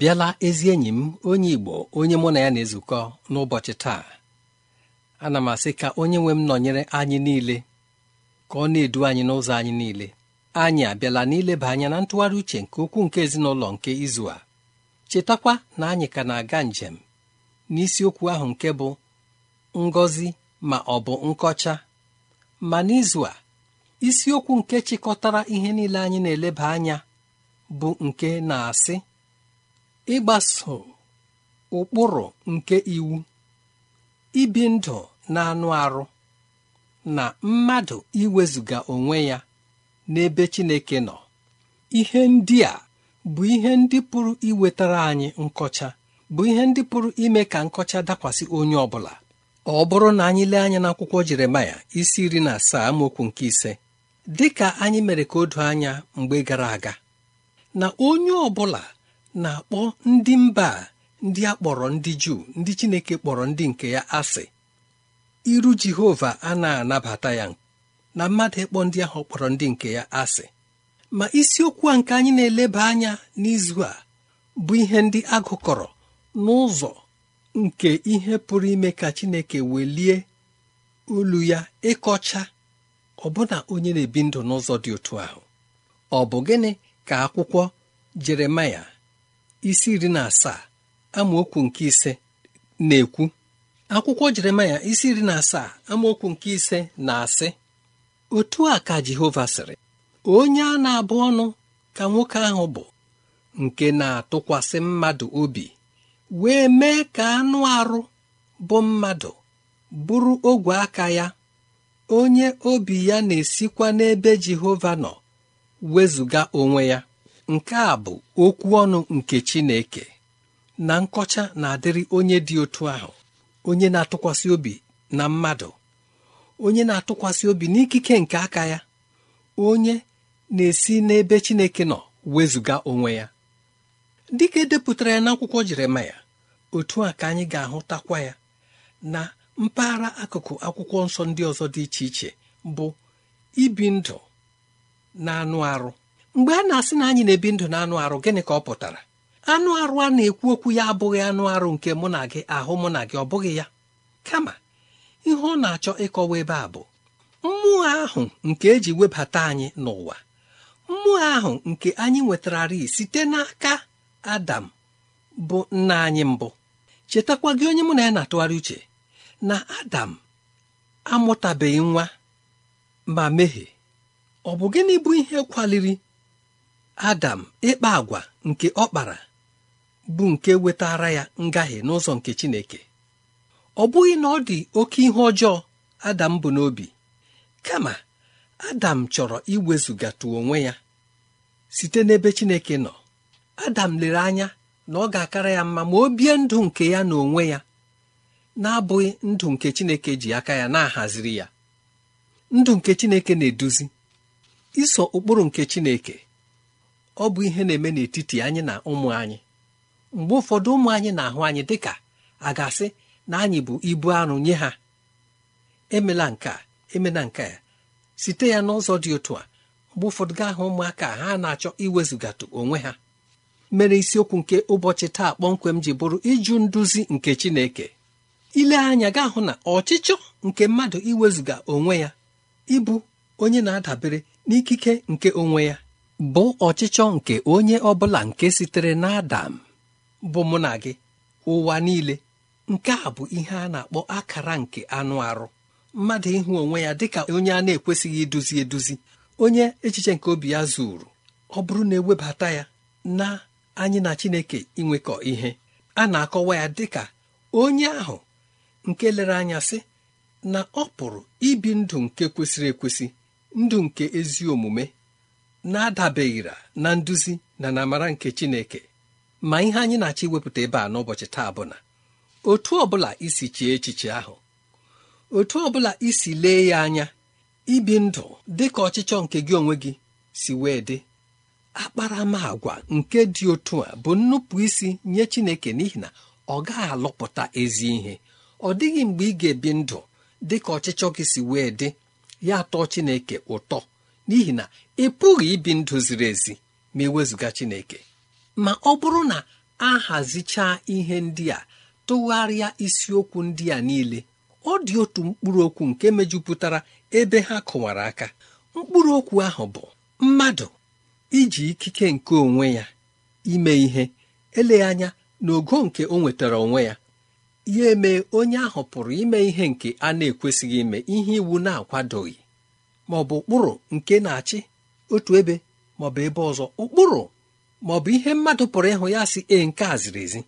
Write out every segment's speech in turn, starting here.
bịala ezi enyi m onye Igbo onye mụ na ya na-ezukọ n'ụbọchị taa ana m asị ka onye nwe m nọnyere anyị niile ka ọ na-edu anyị n'ụzọ anyị niile anyị abịala n'ileba anya na ntụgharị uche nke ukwuu nke ezinụlọ nke izu a chetakwa na anyị ka na-aga njem n'isiokwu ahụ nke bụ ngọzi ma ọ bụ nkọcha ma n'izu a isiokwu nke chịkọtara ihe niile anyị na-eleba anya bụ nke na-asị ịgbaso ụkpụrụ nke iwu ibi ndụ na-anụ arụ na mmadụ iwezuga onwe ya n'ebe Chineke nọ ihe ndị a bụ ihe ndị pụrụ iwetara anyị nkọcha bụ ihe ndị pụrụ ime ka nkọcha dakwasị onye ọ bụla ọ bụrụ na anyị lee anya n'akwụkwọ Jeremaya isi iri na asaa amaokwu nke ise dị ka anyị mere ka o anya mgbe gara aga na onye ọ bụla na-akpọ ndị mba ndị a kpọrọ ndị juu ndị chineke kpọrọ ndị nke ya asị iru jehova a na-anabata ya na mmadụ ịkpọ ndị ahụ kpọrọ ndị nke ya asị ma isiokwu a nke anyị na-eleba anya n'izu a bụ ihe ndị agụkọrọ n'ụzọ nke ihe pụrụ ime ka chineke welie olu ya ịkọcha ọbụna onye na-ebi ndụ n'ụzọ dị otu ahụ ọ bụ gịnị ka akwụkwọ jeremaya isi iri na asaa amaokwu nke ise na-ekwu akwụkwọ jeremaya isi iri na asaa amaokwu nke ise na-asị otu a ka jehova sịrị onye a na-abụ ọnụ ka nwoke ahụ bụ nke na-atụkwasị mmadụ obi wee mee ka anụ arụ bụ mmadụ bụrụ ogwe aka ya onye obi ya na-esikwa n'ebe jehova nọ wezụga onwe ya nke a bụ okwu ọnụ nke Chineke na nkọcha na-adịrị onye dị otu ahụ onye na-atụkwasị obi na mmadụ onye na-atụkwasị obi n'ikike nke aka ya onye na-esi n'ebe Chineke nọ wezụga onwe ya dịka edepụtara ya n'akwụkwọ Jeremaya otu a ka anyị ga-ahụtakwa ya na mpaghara akụkụ akwụkwọ nsọ ndị ọzọ dị iche iche bụ ibi ndụ na anụ arụ mgbe a na-asị na anyị na-ebi ndụ na anụ arụ gịnị ka ọ pụtara anụ arụ a na-ekwu okwu ya abụghị anụ arụ nke mụ na gị ahụ mụ na gị ọ bụghị ya kama ihe ọ na-achọ ịkọwa ebe a bụ mmụọ ahụ nke eji webata anyị n'ụwa mmụọ ahụ nke anyị nwetararị site n'aka adam bụ nna anyị mbụ chetakwa gị onye mụ na ya na-atụgharị uche na adam amụtabeghị nwa ma mehie ọ bụ gịnị bụ ihe kwaliri adam ịkpa agwa nke ọ kpara bụ nke wetara ya ngahie n'ụzọ nke chineke ọ bụghị na ọ dị oke ihe ọjọọ adam bụ n'obi kama adam chọrọ iwezụgatụ onwe ya site n'ebe chineke nọ adam lere anya na ọ ga-akara ya mma ma o bie ndụ nke ya na onwe ya na-abụghị ndụ nke chineke ji aka ya na-ahaziri ya ndụ nke chineke na-eduzi iso ụkpụrụ nke chineke ọ bụ ihe na-eme n'etiti anyị na ụmụ anyị mgbe ụfọdụ ụmụ anyị na-ahụ anyị dịka a ga-asị na anyị bụ ibu arụ nye ha emela nke emela nke ya site ya n'ụzọ dị otu a mgbe ụfọdụ gaa hụ ụmụaka ha na-achọ iwezụgatụ onwe ha mere isiokwu nke ụbọchị taa kpọmkwem ji bụrụ ịjụ nduzi nke Chineke ile anya ga hụ na ọchịchọ nke mmadụ iwezụga onwe ya ịbụ onye na-adabere n'ikike nke onwe ya bụ ọchịchọ nke onye ọ bụla nke sitere n'adam bụ mụ na gị ụwa niile nke a bụ ihe a na-akpọ akara nke anụ arụ mmadụ ịhụ onwe ya dịka onye a na-ekwesịghị iduzi eduzi onye echiche nke obi ya zuru ọ bụrụ na ewebata ya na anyị na Chineke inwekọ ihe a na-akọwa ya dịka onye ahụ nke lere anya sị na ọ pụrụ ibi ndụ nke kwesịrị ekwesị ndụ nke ezi omume na-adabeghịra na nduzi na namara nke chineke ma ihe anyị na-achọ iwepụta ebe a n'ụbọchị taa bụ na otu ọbụla isi chee echiche ahụ otu ọbụla isi lee ya anya ibi ndụ dị ka ọchịchọ nke gị onwe gị si wee dị akparamagwa nke dị otu a bụ nnupụ isi nye Chineke n'ihi na ọ gaghị alụpụta ezi ihe ọ dịghị mgbe ị ga-ebi ndụ dị ka ọchịchọ gị si wee dị ya atọ Chineke ụtọ n'ihi na ị pụghị ibi ndụ ziri ezi ma ewezụga Chineke ma ọ bụrụ na a hazichaa ihe ndị a tụgharịa isiokwu ndị a niile ọ dị otu mkpụrụ okwu nke mejupụtara ebe ha kụwara aka mkpụrụ okwu ahụ bụ mmadụ iji ikike nke onwe ya ime ihe eleghị anya n'ogo nke o nwetara onwe ya ya eme onye ahụ pụrụ ime ihe nke a na-ekwesịghị ime ihe iwu na-akwadoghị ma ọ bụ ụkpụrụ nke na-achị otu ebe maọbụ ebe ọzọ ụkpụrụ maọbụ ihe mmadụ pụrụ ịhụ ya si e nke a ziri ezi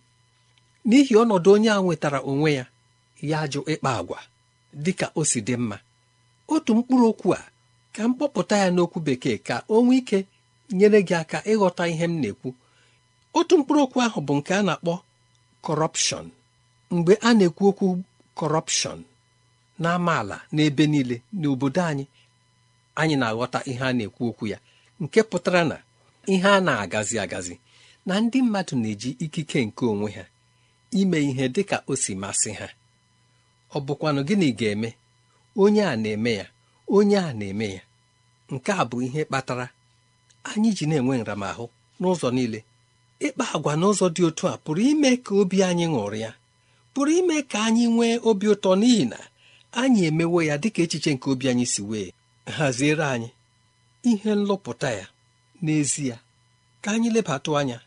n'ihi ọnọdụ onye a nwetara onwe ya ya jụ ịkpa agwa dị ka o si dị mma otu mkpụrụ okwu a ka m kpọpụta ya n'okwu bekee ka o nwee ike nyere gị aka ịghọta ihe m na-ekwu otu mkpụrụ okwu ahụ bụ nke a na-akpọ kọrọpshọn mgbe a na-ekwu okwu kọrọpshọn n'amaala n'ebe niile n'obodo anyị anyị na-aghọta ihe a na-ekwu okwu ya nke pụtara na ihe a na-agazi agazi na ndị mmadụ na-eji ikike nke onwe ha ime ihe dị ka o si masị ha ọ bụkwanụ gịnị ga-eme onye a na-eme ya onye a na-eme ya nke a bụ ihe kpatara anyị ji na-enwe nramahụ n'ụzọ niile ịkpa agwa n'ụzọ dị otu a pụrụ ime ka obi anyị ṅụrịa pụrụ ime ka anyị nwee obi ụtọ n'ihi na anyị emewo ya dịka echiche nke obi anyị si wee haziere anyị ihe nlụpụta ya n'ezie ka anyị lebatụ anya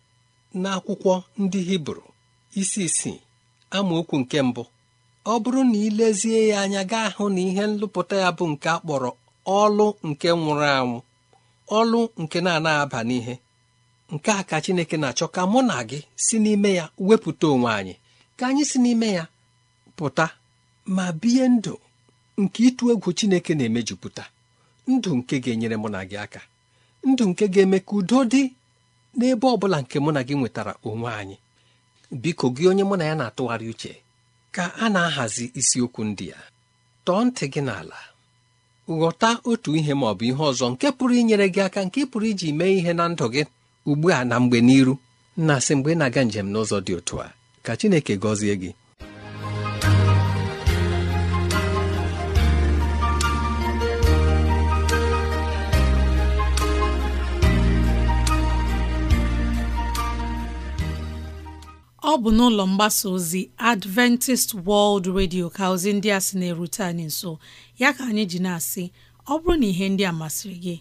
n'akwụkwọ ndị hibru isi isii amaokwu nke mbụ ọ bụrụ na ilezie lezie ya anya gaa hụ na ihe nlụpụta ya bụ nke akpọrọ ọlụ nke nwụrụ anwụ ọlụ nke na-anaghị aba n'ihe nke a ka Chineke na-achọ ka mụ na gị si n'ime ya wepụta onwe anyị ka anyị si n'ime ya pụta ma bie ndụ nke ịtụ egwu Chineke na-emejupụta ndụ nke ga-enyere mụ na gị aka ndụ nke ga-eme ka udo dị n'ebe ọ bụla nke mụ na gị nwetara onwe anyị biko gị onye mụ na ya na-atụgharị uche ka a na-ahazi isiokwu ndị ya tọọ ntị gị n'ala ghọta otu ihe ma ọ bụ ihe ọzọ nke pụrụ inyere gị aka nke pụrụ iji mee ihe na ndụ gị ugbu a na mgbe n'iru na-asị mgbe ị na-aga njem n'ụzọ dị otu a ka Chineke gọzie gị ọ bụ n'ụlọ mgbasa ozi Adventist World Radio ka ozi ndị a sị na-erute anyị nso ya ka anyị ji na-asị ọ bụrụ na ihe ndị a masịrị gị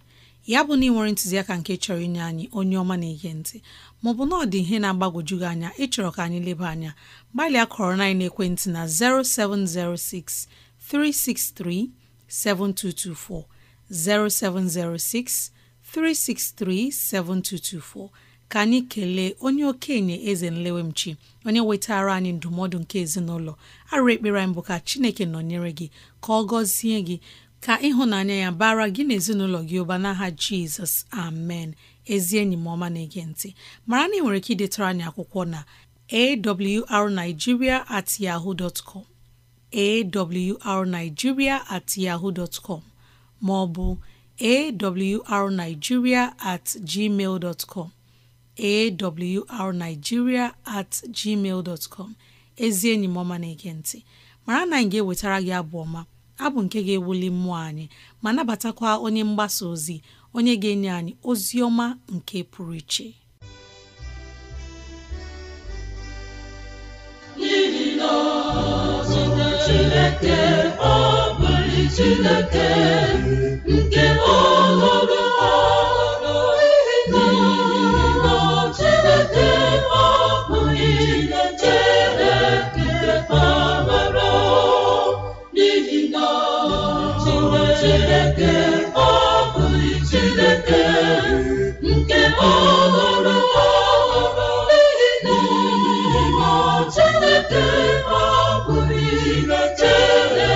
ya bụ na ị nwere ntụziaka nke chọrọ inye anyị onye ọma na-ege ntị maọbụ na ọ dị ihe na-agbagwoju gị anya ịchọrọ ka anyị leba anya gbalịa kọrọ na ekwentị na 0706 363 7224 0706 363 7224 ka anyị kelee onye okenye eze nlewemchi onye wetara anyị ndụmọdụ nke ezinụlọ arụ ekpere anyị bụ ka chineke nọnyere gị ka ọ gọzie gị ka ịhụnanya ya bara gị na ezinụlọ gị ụba n'aha jizọs amen ezi enyi m ọma na-ege ntị mara na ị nwere ike idetara anyị akwụkwọ na awrnigeria at yahoo dot com awrnigeria at yahoo dot com ma ọ bụ awrnigeria at gmail dot com awrnigeria at gmail dot com ezi enyi m ọma na-ege nti mara na anyị ga-ewetara gị abụ ọma abụ nke ga-ewuli mmụọ anyị ma nabatakwa onye mgbasa ozi onye ga-enye anyị ozi ọma nke pụrụ iche Chineke ọ bụrụ Chineke nke ọhụrụ Chineke ọ bụghị Chineke nke ọhụrụ ọhụrụ n'ihi na Chineke ọ bụghị Chineke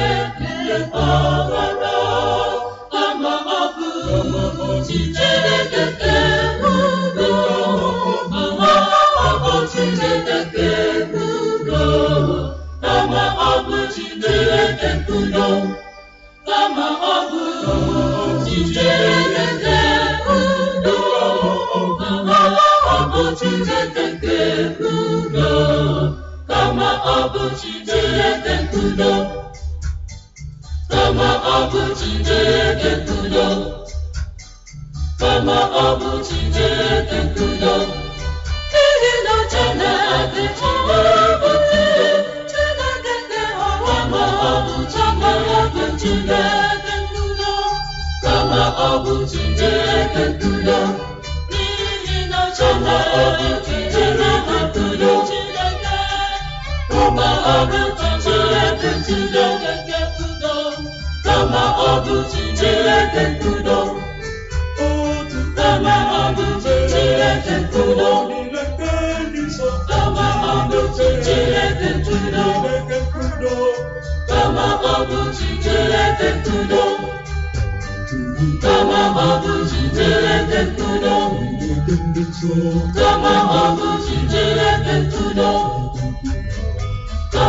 Chineke nke ọ bụ Chineke ndudo kama ọ bụ Chineke ndudo kama ọ bụ Chineke ndudo n'ihi na Chineke chọrọbụte Chineke dị ọrụ ma ọ bụ chọrọbụ Chineke ndudo kama ọ bụ Chineke ndudo n'ihi na kama ọ bụ Chineke nkudo kama ọ bụ Chineke nkudo kama ọ bụ kama ọ bụ kama ọ bụ kama ọ bụ kama ọ bụ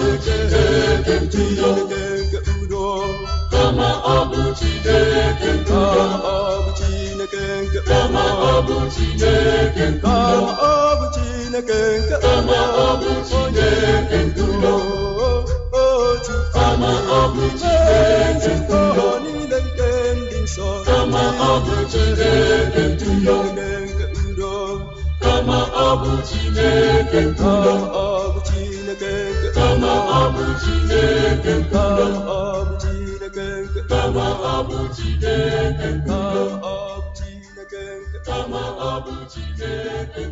bụ kama ọ bụ Chineke ntuyo ọ bụ Chineke nke kama ọ bụ Chineke ntuyo kama ọ bụ nke kama ọ bụ Chineke ntuyo kama ọ bụ nke ndị nsọ kama ọ nke Ka ọ bụ Chineke ọ bụ Chineke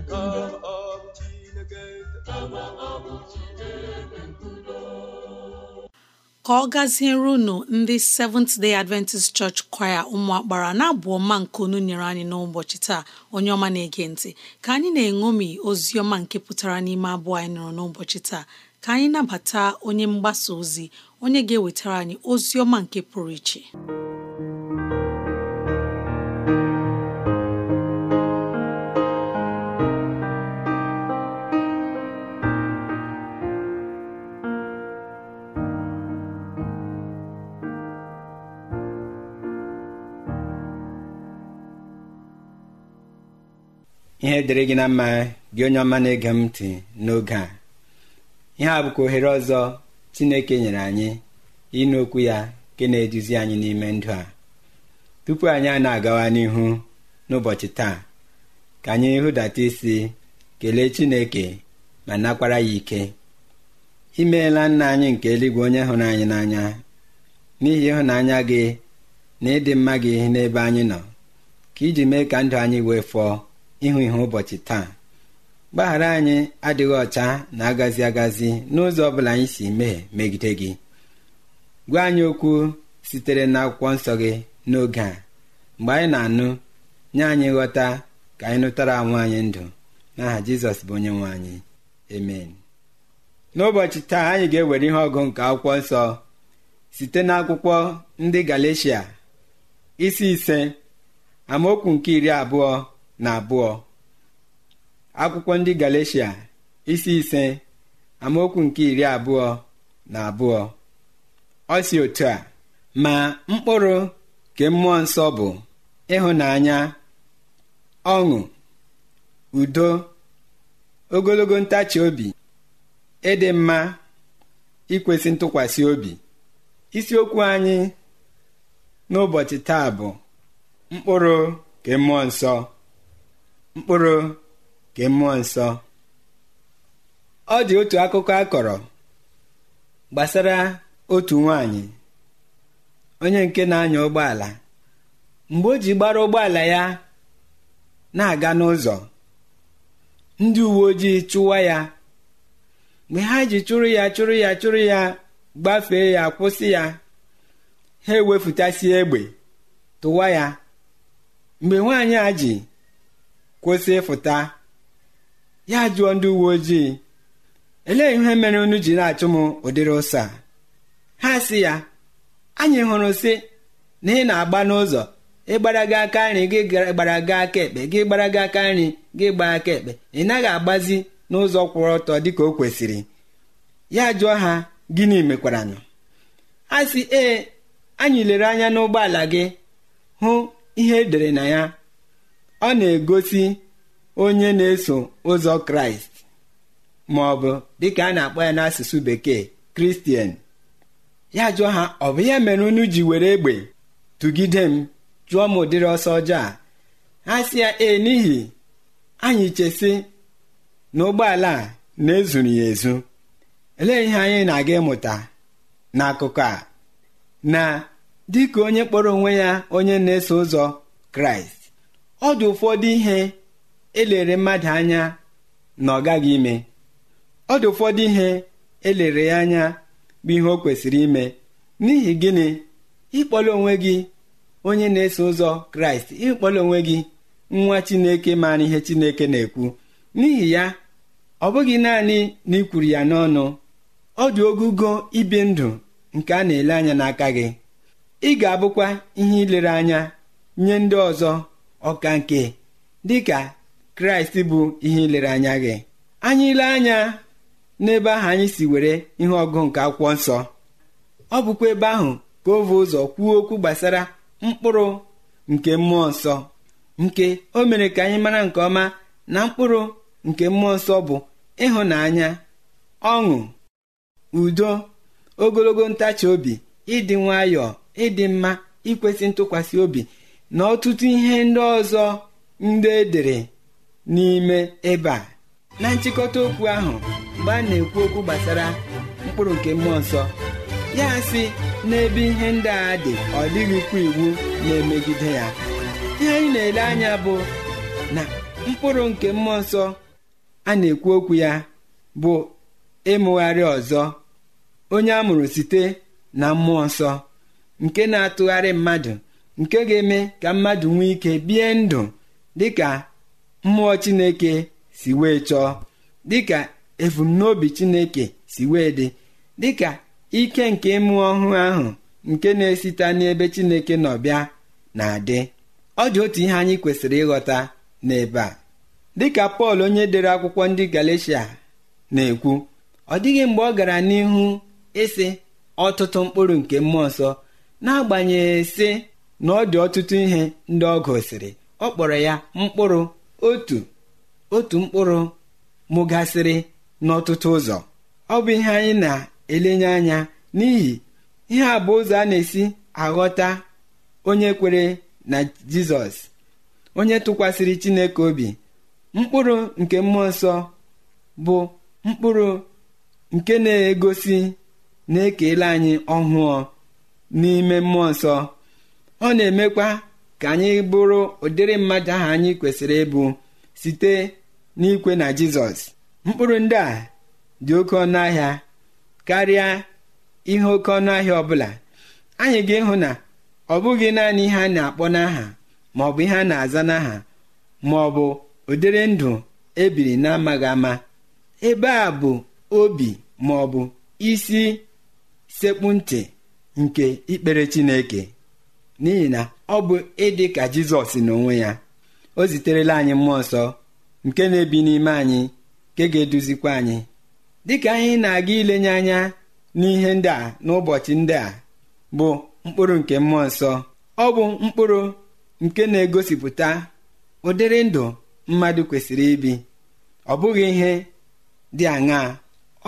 ka ọ gaziere unu ndị Seventh Day Adventist Church Choir ụmụakpara na-abụ ọma nke unu nyere anyị n'ụbọchị taa onye ọma na-ege ntị ka anyị na-eṅomi ozi ọma nke pụtara n'ime abụọ anyị nụrụ n'ụbọchị taa ka anyị nabata onye mgbasa ozi onye ga-ewetara anyị ozi ọma nke pụrụ iche ihe dịrị gị na mma gị onye ọma na-ege m ntị n'oge a ihe a bụkwa ohere ọzọ Chineke nyere anyị ịnụ okwu ya nke na-eduzi anyị n'ime ndụ a tupu anyị a na-agawa n'ihu n'ụbọchị taa ka anyị hụdata isi kelee Chineke ma nakwara ya ike imeela nna anyị nke eluigwe onye hụrụ anyị n'anya n'ihi ịhụnanya gị na ịdị mma gị n'ebe anyị nọ ka iji mee ka ndụ anyị wee fọọ ịhụ ihe ụbọchị taa gbaghara anyị adịghị ọcha na agazi agazi n'ụzọ ọ bụla anyị si mee megide gị gwa anyị okwu sitere n'akwụkwọ nsọ gị n'oge a mgbe anyị na-anụ nye anyị nghọta ka anyị nụtara anwụ anyị ndụ n'aha jizọs bụ onye nwe anyị n'ụbọchị taa anyị ga-ewere ihe ọgụ nke akwụkwọ nsọ site n'akwụkwọ ndị galeshia isi ise amaokwu nke iri abụọ na abụọ akwụkwọ ndị Galeshia isi ise amaokwu nke iri abụọ na abụọ ọ si otu a ma mkpụrụ ke mmụọ nsọ bụ ịhụnanya ọṅụ udo ogologo ntachi obi ịdị mma ikwesị ntụkwasị obi isiokwu anyị n'ụbọchị taa bụ mkpụrụ ke mmụọ nsọ mkpụrụ nke mmụọ nsọ ọ dị otu akụkọ a kọrọ gbasara otu nwanyị onye nke na-anya ụgbọala mgbe o ji gbara ụgbọala ya na-aga n'ụzọ ndị uwe ojii chụwa ya mgbe ha ji chụrụ ya chụrụ ya chụrụ ya gbafee ya kwụsị ya ha ewefutasie egbe tụwa ya mgbe nwaanyị a ji kwụsị ịfụta ya jụọ ndị uwe ojii elee ihe mere unu ji na-achụ m ụdịrị ụsa ha si ya anyị hụrụ sị na ị na-agba n'ụzọ ịgbara gị aka nri gị gbara gị aka ekpe gị gbara gị aka nri gị gbaa aka ekpe ị naghị agbazi n'ụzọ kwụrụ ọtọ dịka o kwesịrị ya jụọ ha gịnị mekwaranụ ha sị ee anyị lere anya n'ụgbọala gị hụ ihe edere na ya ọ na-egosi onye na-eso ụzọ kraịst ma ọ bụ dịka a na-akpọ ya n'asụsụ bekee kristian ya jụọ ha ọ bụ ya mere unu ji were egbe tụgide m jụọ m ụdịrị ọsọ ọjọọ a ha si ya ee n'ihi anyị chesi na ụgbọala a na-ezuru ya ezu elee ihe anyị na-aga ịmụta n'akụkọ a na dịka onye kpọrọ onwe ya onye na-eso ụzọ kraịst ọ dị ụfọdụ ihe elere mmadụ anya na ọ gaghị ime ọ dị ụfọdụ ihe elere ya anya bụ ihe o kwesịrị ime n'ihi gịnị ịkpọla onwe gị onye na-eso ụzọ kraịst ịkpọla onwe gị nwa chineke maara ihe chineke na-ekwu n'ihi ya ọ bụghị naanị na ị kwuru ya n'ọnụ ọ dị ogụgo ibi ndụ nke a na-ele anya n'aka gị ị ga-abụkwa ihe ilere anya nye ndị ọzọ ọka nke dịka kraịst bụ ihe ilere anya gị anyị ile anya n'ebe ahụ anyị si were ihe ọgụ nke akwụkwọ nsọ ọ bụkwa ebe ahụ ka o vee ụzọ kwuo okwu gbasara mkpụrụ nke mmụọ nsọ nke o mere ka anyị mara nke ọma na mkpụrụ nke mmụọ nsọ bụ ịhụnanya ọṅụ udo ogologo ntachi obi ịdị nwayọọ ịdị mma ikwesị ntụkwasị obi na ọtụtụ ihe ndị ọzọ ndị edere n'ime ebe a na nchịkọta okwu ahụ mgbe a na-ekwu okwu gbasara mkpụrụ nke mmụọ nsọ ya si n'ebe ihe ndị a dị ọ dịghịkwa iwu na-emegide ya ihe anyị na-ele anya bụ na mkpụrụ nke mmụọ nsọ a na-ekwu okwu ya bụ ịmụgharị ọzọ onye a mụrụ site na mmụọ nsọ nke na-atụgharị mmadụ nke ga-eme ka mmadụ nwee ike bie ndụ dịka mmụọ chineke si wee chọọ dịka ebumnobi chineke si wee dị dịka ike nke mmụọ ọhụụ ahụ nke na-esite n'ebe chineke nọ bịa na-adị ọ dị otu ihe anyị kwesịrị ịghọta n'ebe a dịka pọl onye dere akwụkwọ ndị galatia na-ekwu ọ dịghị mgbe ọ gara n'ihu ịsị ọtụtụ mkpụrụ nke mmụọ nsọ n'agbanyeghị sị na ọ dị ọtụtụ ihe ndị ọ gosiri ọ kpọrọ ya mkpụrụ otu otu mkpụrụ mụgasịrị n'ọtụtụ ụzọ ọ bụ ihe anyị na-elenye anya n'ihi ihe a bụ ụzọ a na-esi aghọta onye kwere na jizọs onye tụkwasịrị chineke obi mkpụrụ nke mmụọ nsọ bụ mkpụrụ nke na-egosi na-ekele anyị ọhụụ n'ime mmụọ nsọ ọ na-emekwa ka anyị bụrụ ụdịrị mmadụ ahụ anyị kwesịrị ịbụ site n'ikwe na jizọs mkpụrụ ndị a dị oke ọnụ ahịa karịa ihe oke ọnụahịa ọbụla anyị ga-ịhụ na ọ bụghị naanị ihe a na-akpọ n'aha ma ọ bụ ihe a na-aza n'aha ma ọ bụ ụdịrị ndụ ebiri na-amaghị ama ebe a bụ obi ma isi sekpu ntị nke ikpere chineke n'ihi na ọ bụ ịdị ka jizọs onwe ya o ziterela anyị mmụọ nsọ nke na-ebi n'ime anyị nke ga-eduzikwa anyị dịka anyị na-aga ilenye anya n'ihe ndị a n'ụbọchị ndị a bụ mkpụrụ nke mmụọ nsọ ọ bụ mkpụrụ nke na-egosipụta ụdịrị ndụ mmadụ kwesịrị ibi ọ bụghị ihe dị aṅaa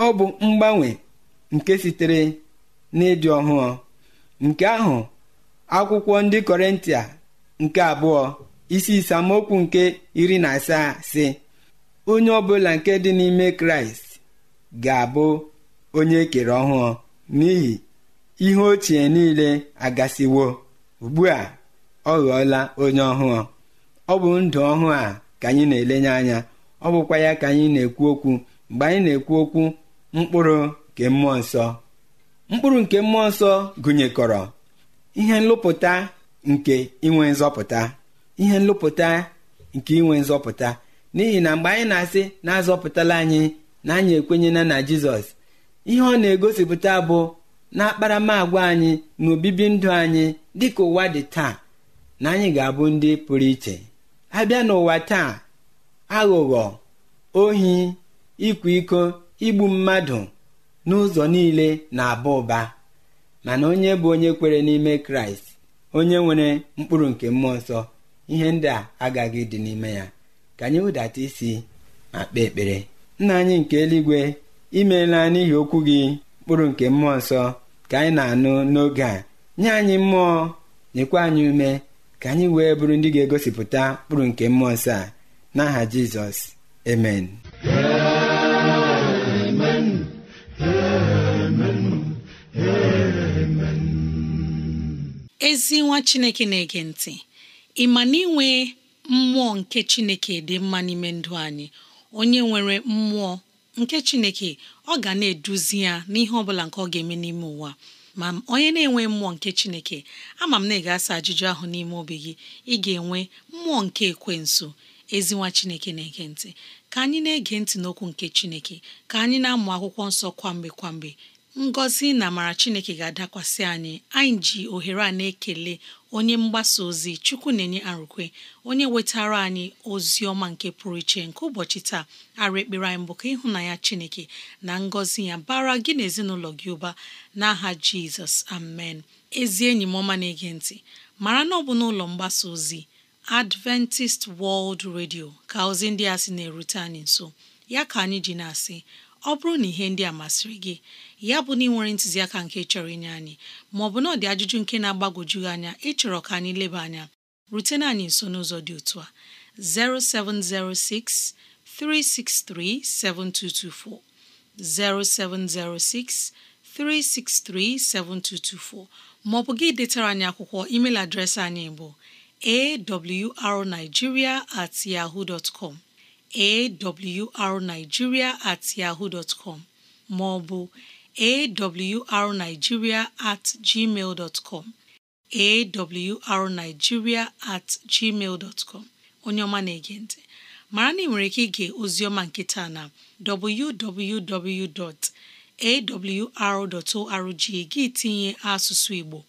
ọ bụ mgbanwe nke sitere n'ịdị ọhụụ nke ahụ akwụkwọ ndị kọrịntịa nke abụọ isi isamokwu nke iri na asaa si onye ọbụla nke dị n'ime kraịst ga-abụ onye ekere ọhụụ n'ihi ihe ochie niile agasiwo ugbu a ọ ghọọla onye ọhụụ ọ bụ ndụ ọhụụ a ka anyị na-elenye anya ọ bụkwa ya ka anyị na-ekwu okwu mgbe anyị na-ekwu okwu mkpụrụ nke mmụọ nsọ mkpụrụ nke mmụọ nsọ gụnyekọrọ ihe nlụpụta nke inwe nzọpụta ihe nlụpụta nke inwe nzọpụta n'ihi na mgbe anyị na-asị na-azọpụtala anyị na anyị ekwenyela na jizọs ihe ọ na-egosipụta bụ na akparamagwa anyị na obibi ndụ anyị dịka ụwa dị taa na anyị ga-abụ ndị pụrụ iche abịa n'ụwa taa aghụghọ ohi ịkwa iko igbu mmadụ n'ụzọ niile na-aba ụba mana onye bụ onye kwere n'ime kraịst onye nwere mkpụrụ nke mmụọ nsọ ihe ndị a agaghị dị n'ime ya ka anyị wụdata isi ma kpee ekpere nna anyị nke eluigwe imeela n'ihi okwu gị mkpụrụ nke mmụọ nsọ ka anyị na-anụ n'oge a nye anyị mmụọ nyekwa anyị ume ka anyị wee bụrụ ndị ga-egosipụta mkpụrụ nke mmụọ nsọ a n'aha Jizọs amen ezi nwa chineke na-ege ntị ị ma na inwe mmụọ nke chineke dị mma n'ime ndụ anyị onye nwere mmụọ nke chineke ọ ga na-eduzi ya n'ihe ọ bụla nke ọ ga-eme n'ime ụwa ma onye na-enwe mmụọ nke chineke ama m na ị ga-asa ajụjụ ahụ n'ime obi gị ị ga-enwe mmụọ nke ekwensu ezinwa chineke na-ege ntị ka anyị na-ege ntị n'okwu nke chineke ka anyị na-amụ akwụkwọ nsọ kwamgbe kwamgbe ngọzi na amara chineke ga-adakwasị anyị anyị ji ohere a na-ekele onye mgbasa ozi chukwu na-enye arụkwe onye wetara anyị ozi ọma nke pụrụ iche nke ụbọchị taa arụ ekpere anyị bụ ka ịhụnanya chineke na ngọzi ya bara gị na ezinụlọ gị ụba n'aha jizọs amen ezi enyi m ọma na-ege ntị mara na ọ bụ n'ụlọ mgbasa ozi adventist world radio ka ozi ndị a sị na-erute anyị nso ya ka anyị ji na-asị ọ bụrụ na ihe ndị a masịrị gị ya bụ na ị nwere ntụziaka nke chọrọ inye anyị maọbụ na ọ dị ajụjụ nke na-agbagwoju anya ịchọrọ ka anyị leba anya rutena anyị nso n'ụzọ dị otu a 0706 363 7224 0706 363 7224 maọbụ gị detara anyị akwụkwọ email adreesị anyị bụ awrnigeria at yahoo dot com awrnigeria at yahoo dot com ma at gmail dot com at gmail dot com onye ọma na-ege ntị mara na ị nwere ike ige ozioma nkịta na www.awr.org gị tinye asụsụ Igbo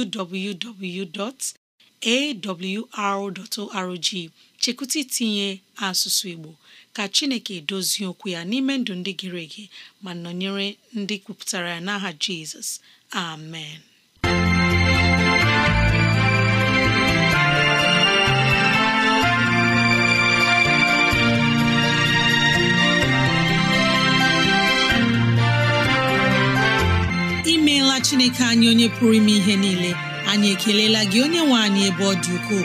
www.awr.org chekwụta itinye asụsụ Igbo ka Chineke dozie okwu ya n'ime ndụ ndị gịrị ege ma nọnyere ndị kwupụtara ya n'aha Jizọs amen imeela Chineke anyị onye pụrụ ime ihe niile anyị ekelela gị onye nwe anyị ebe ọ dị ukwuu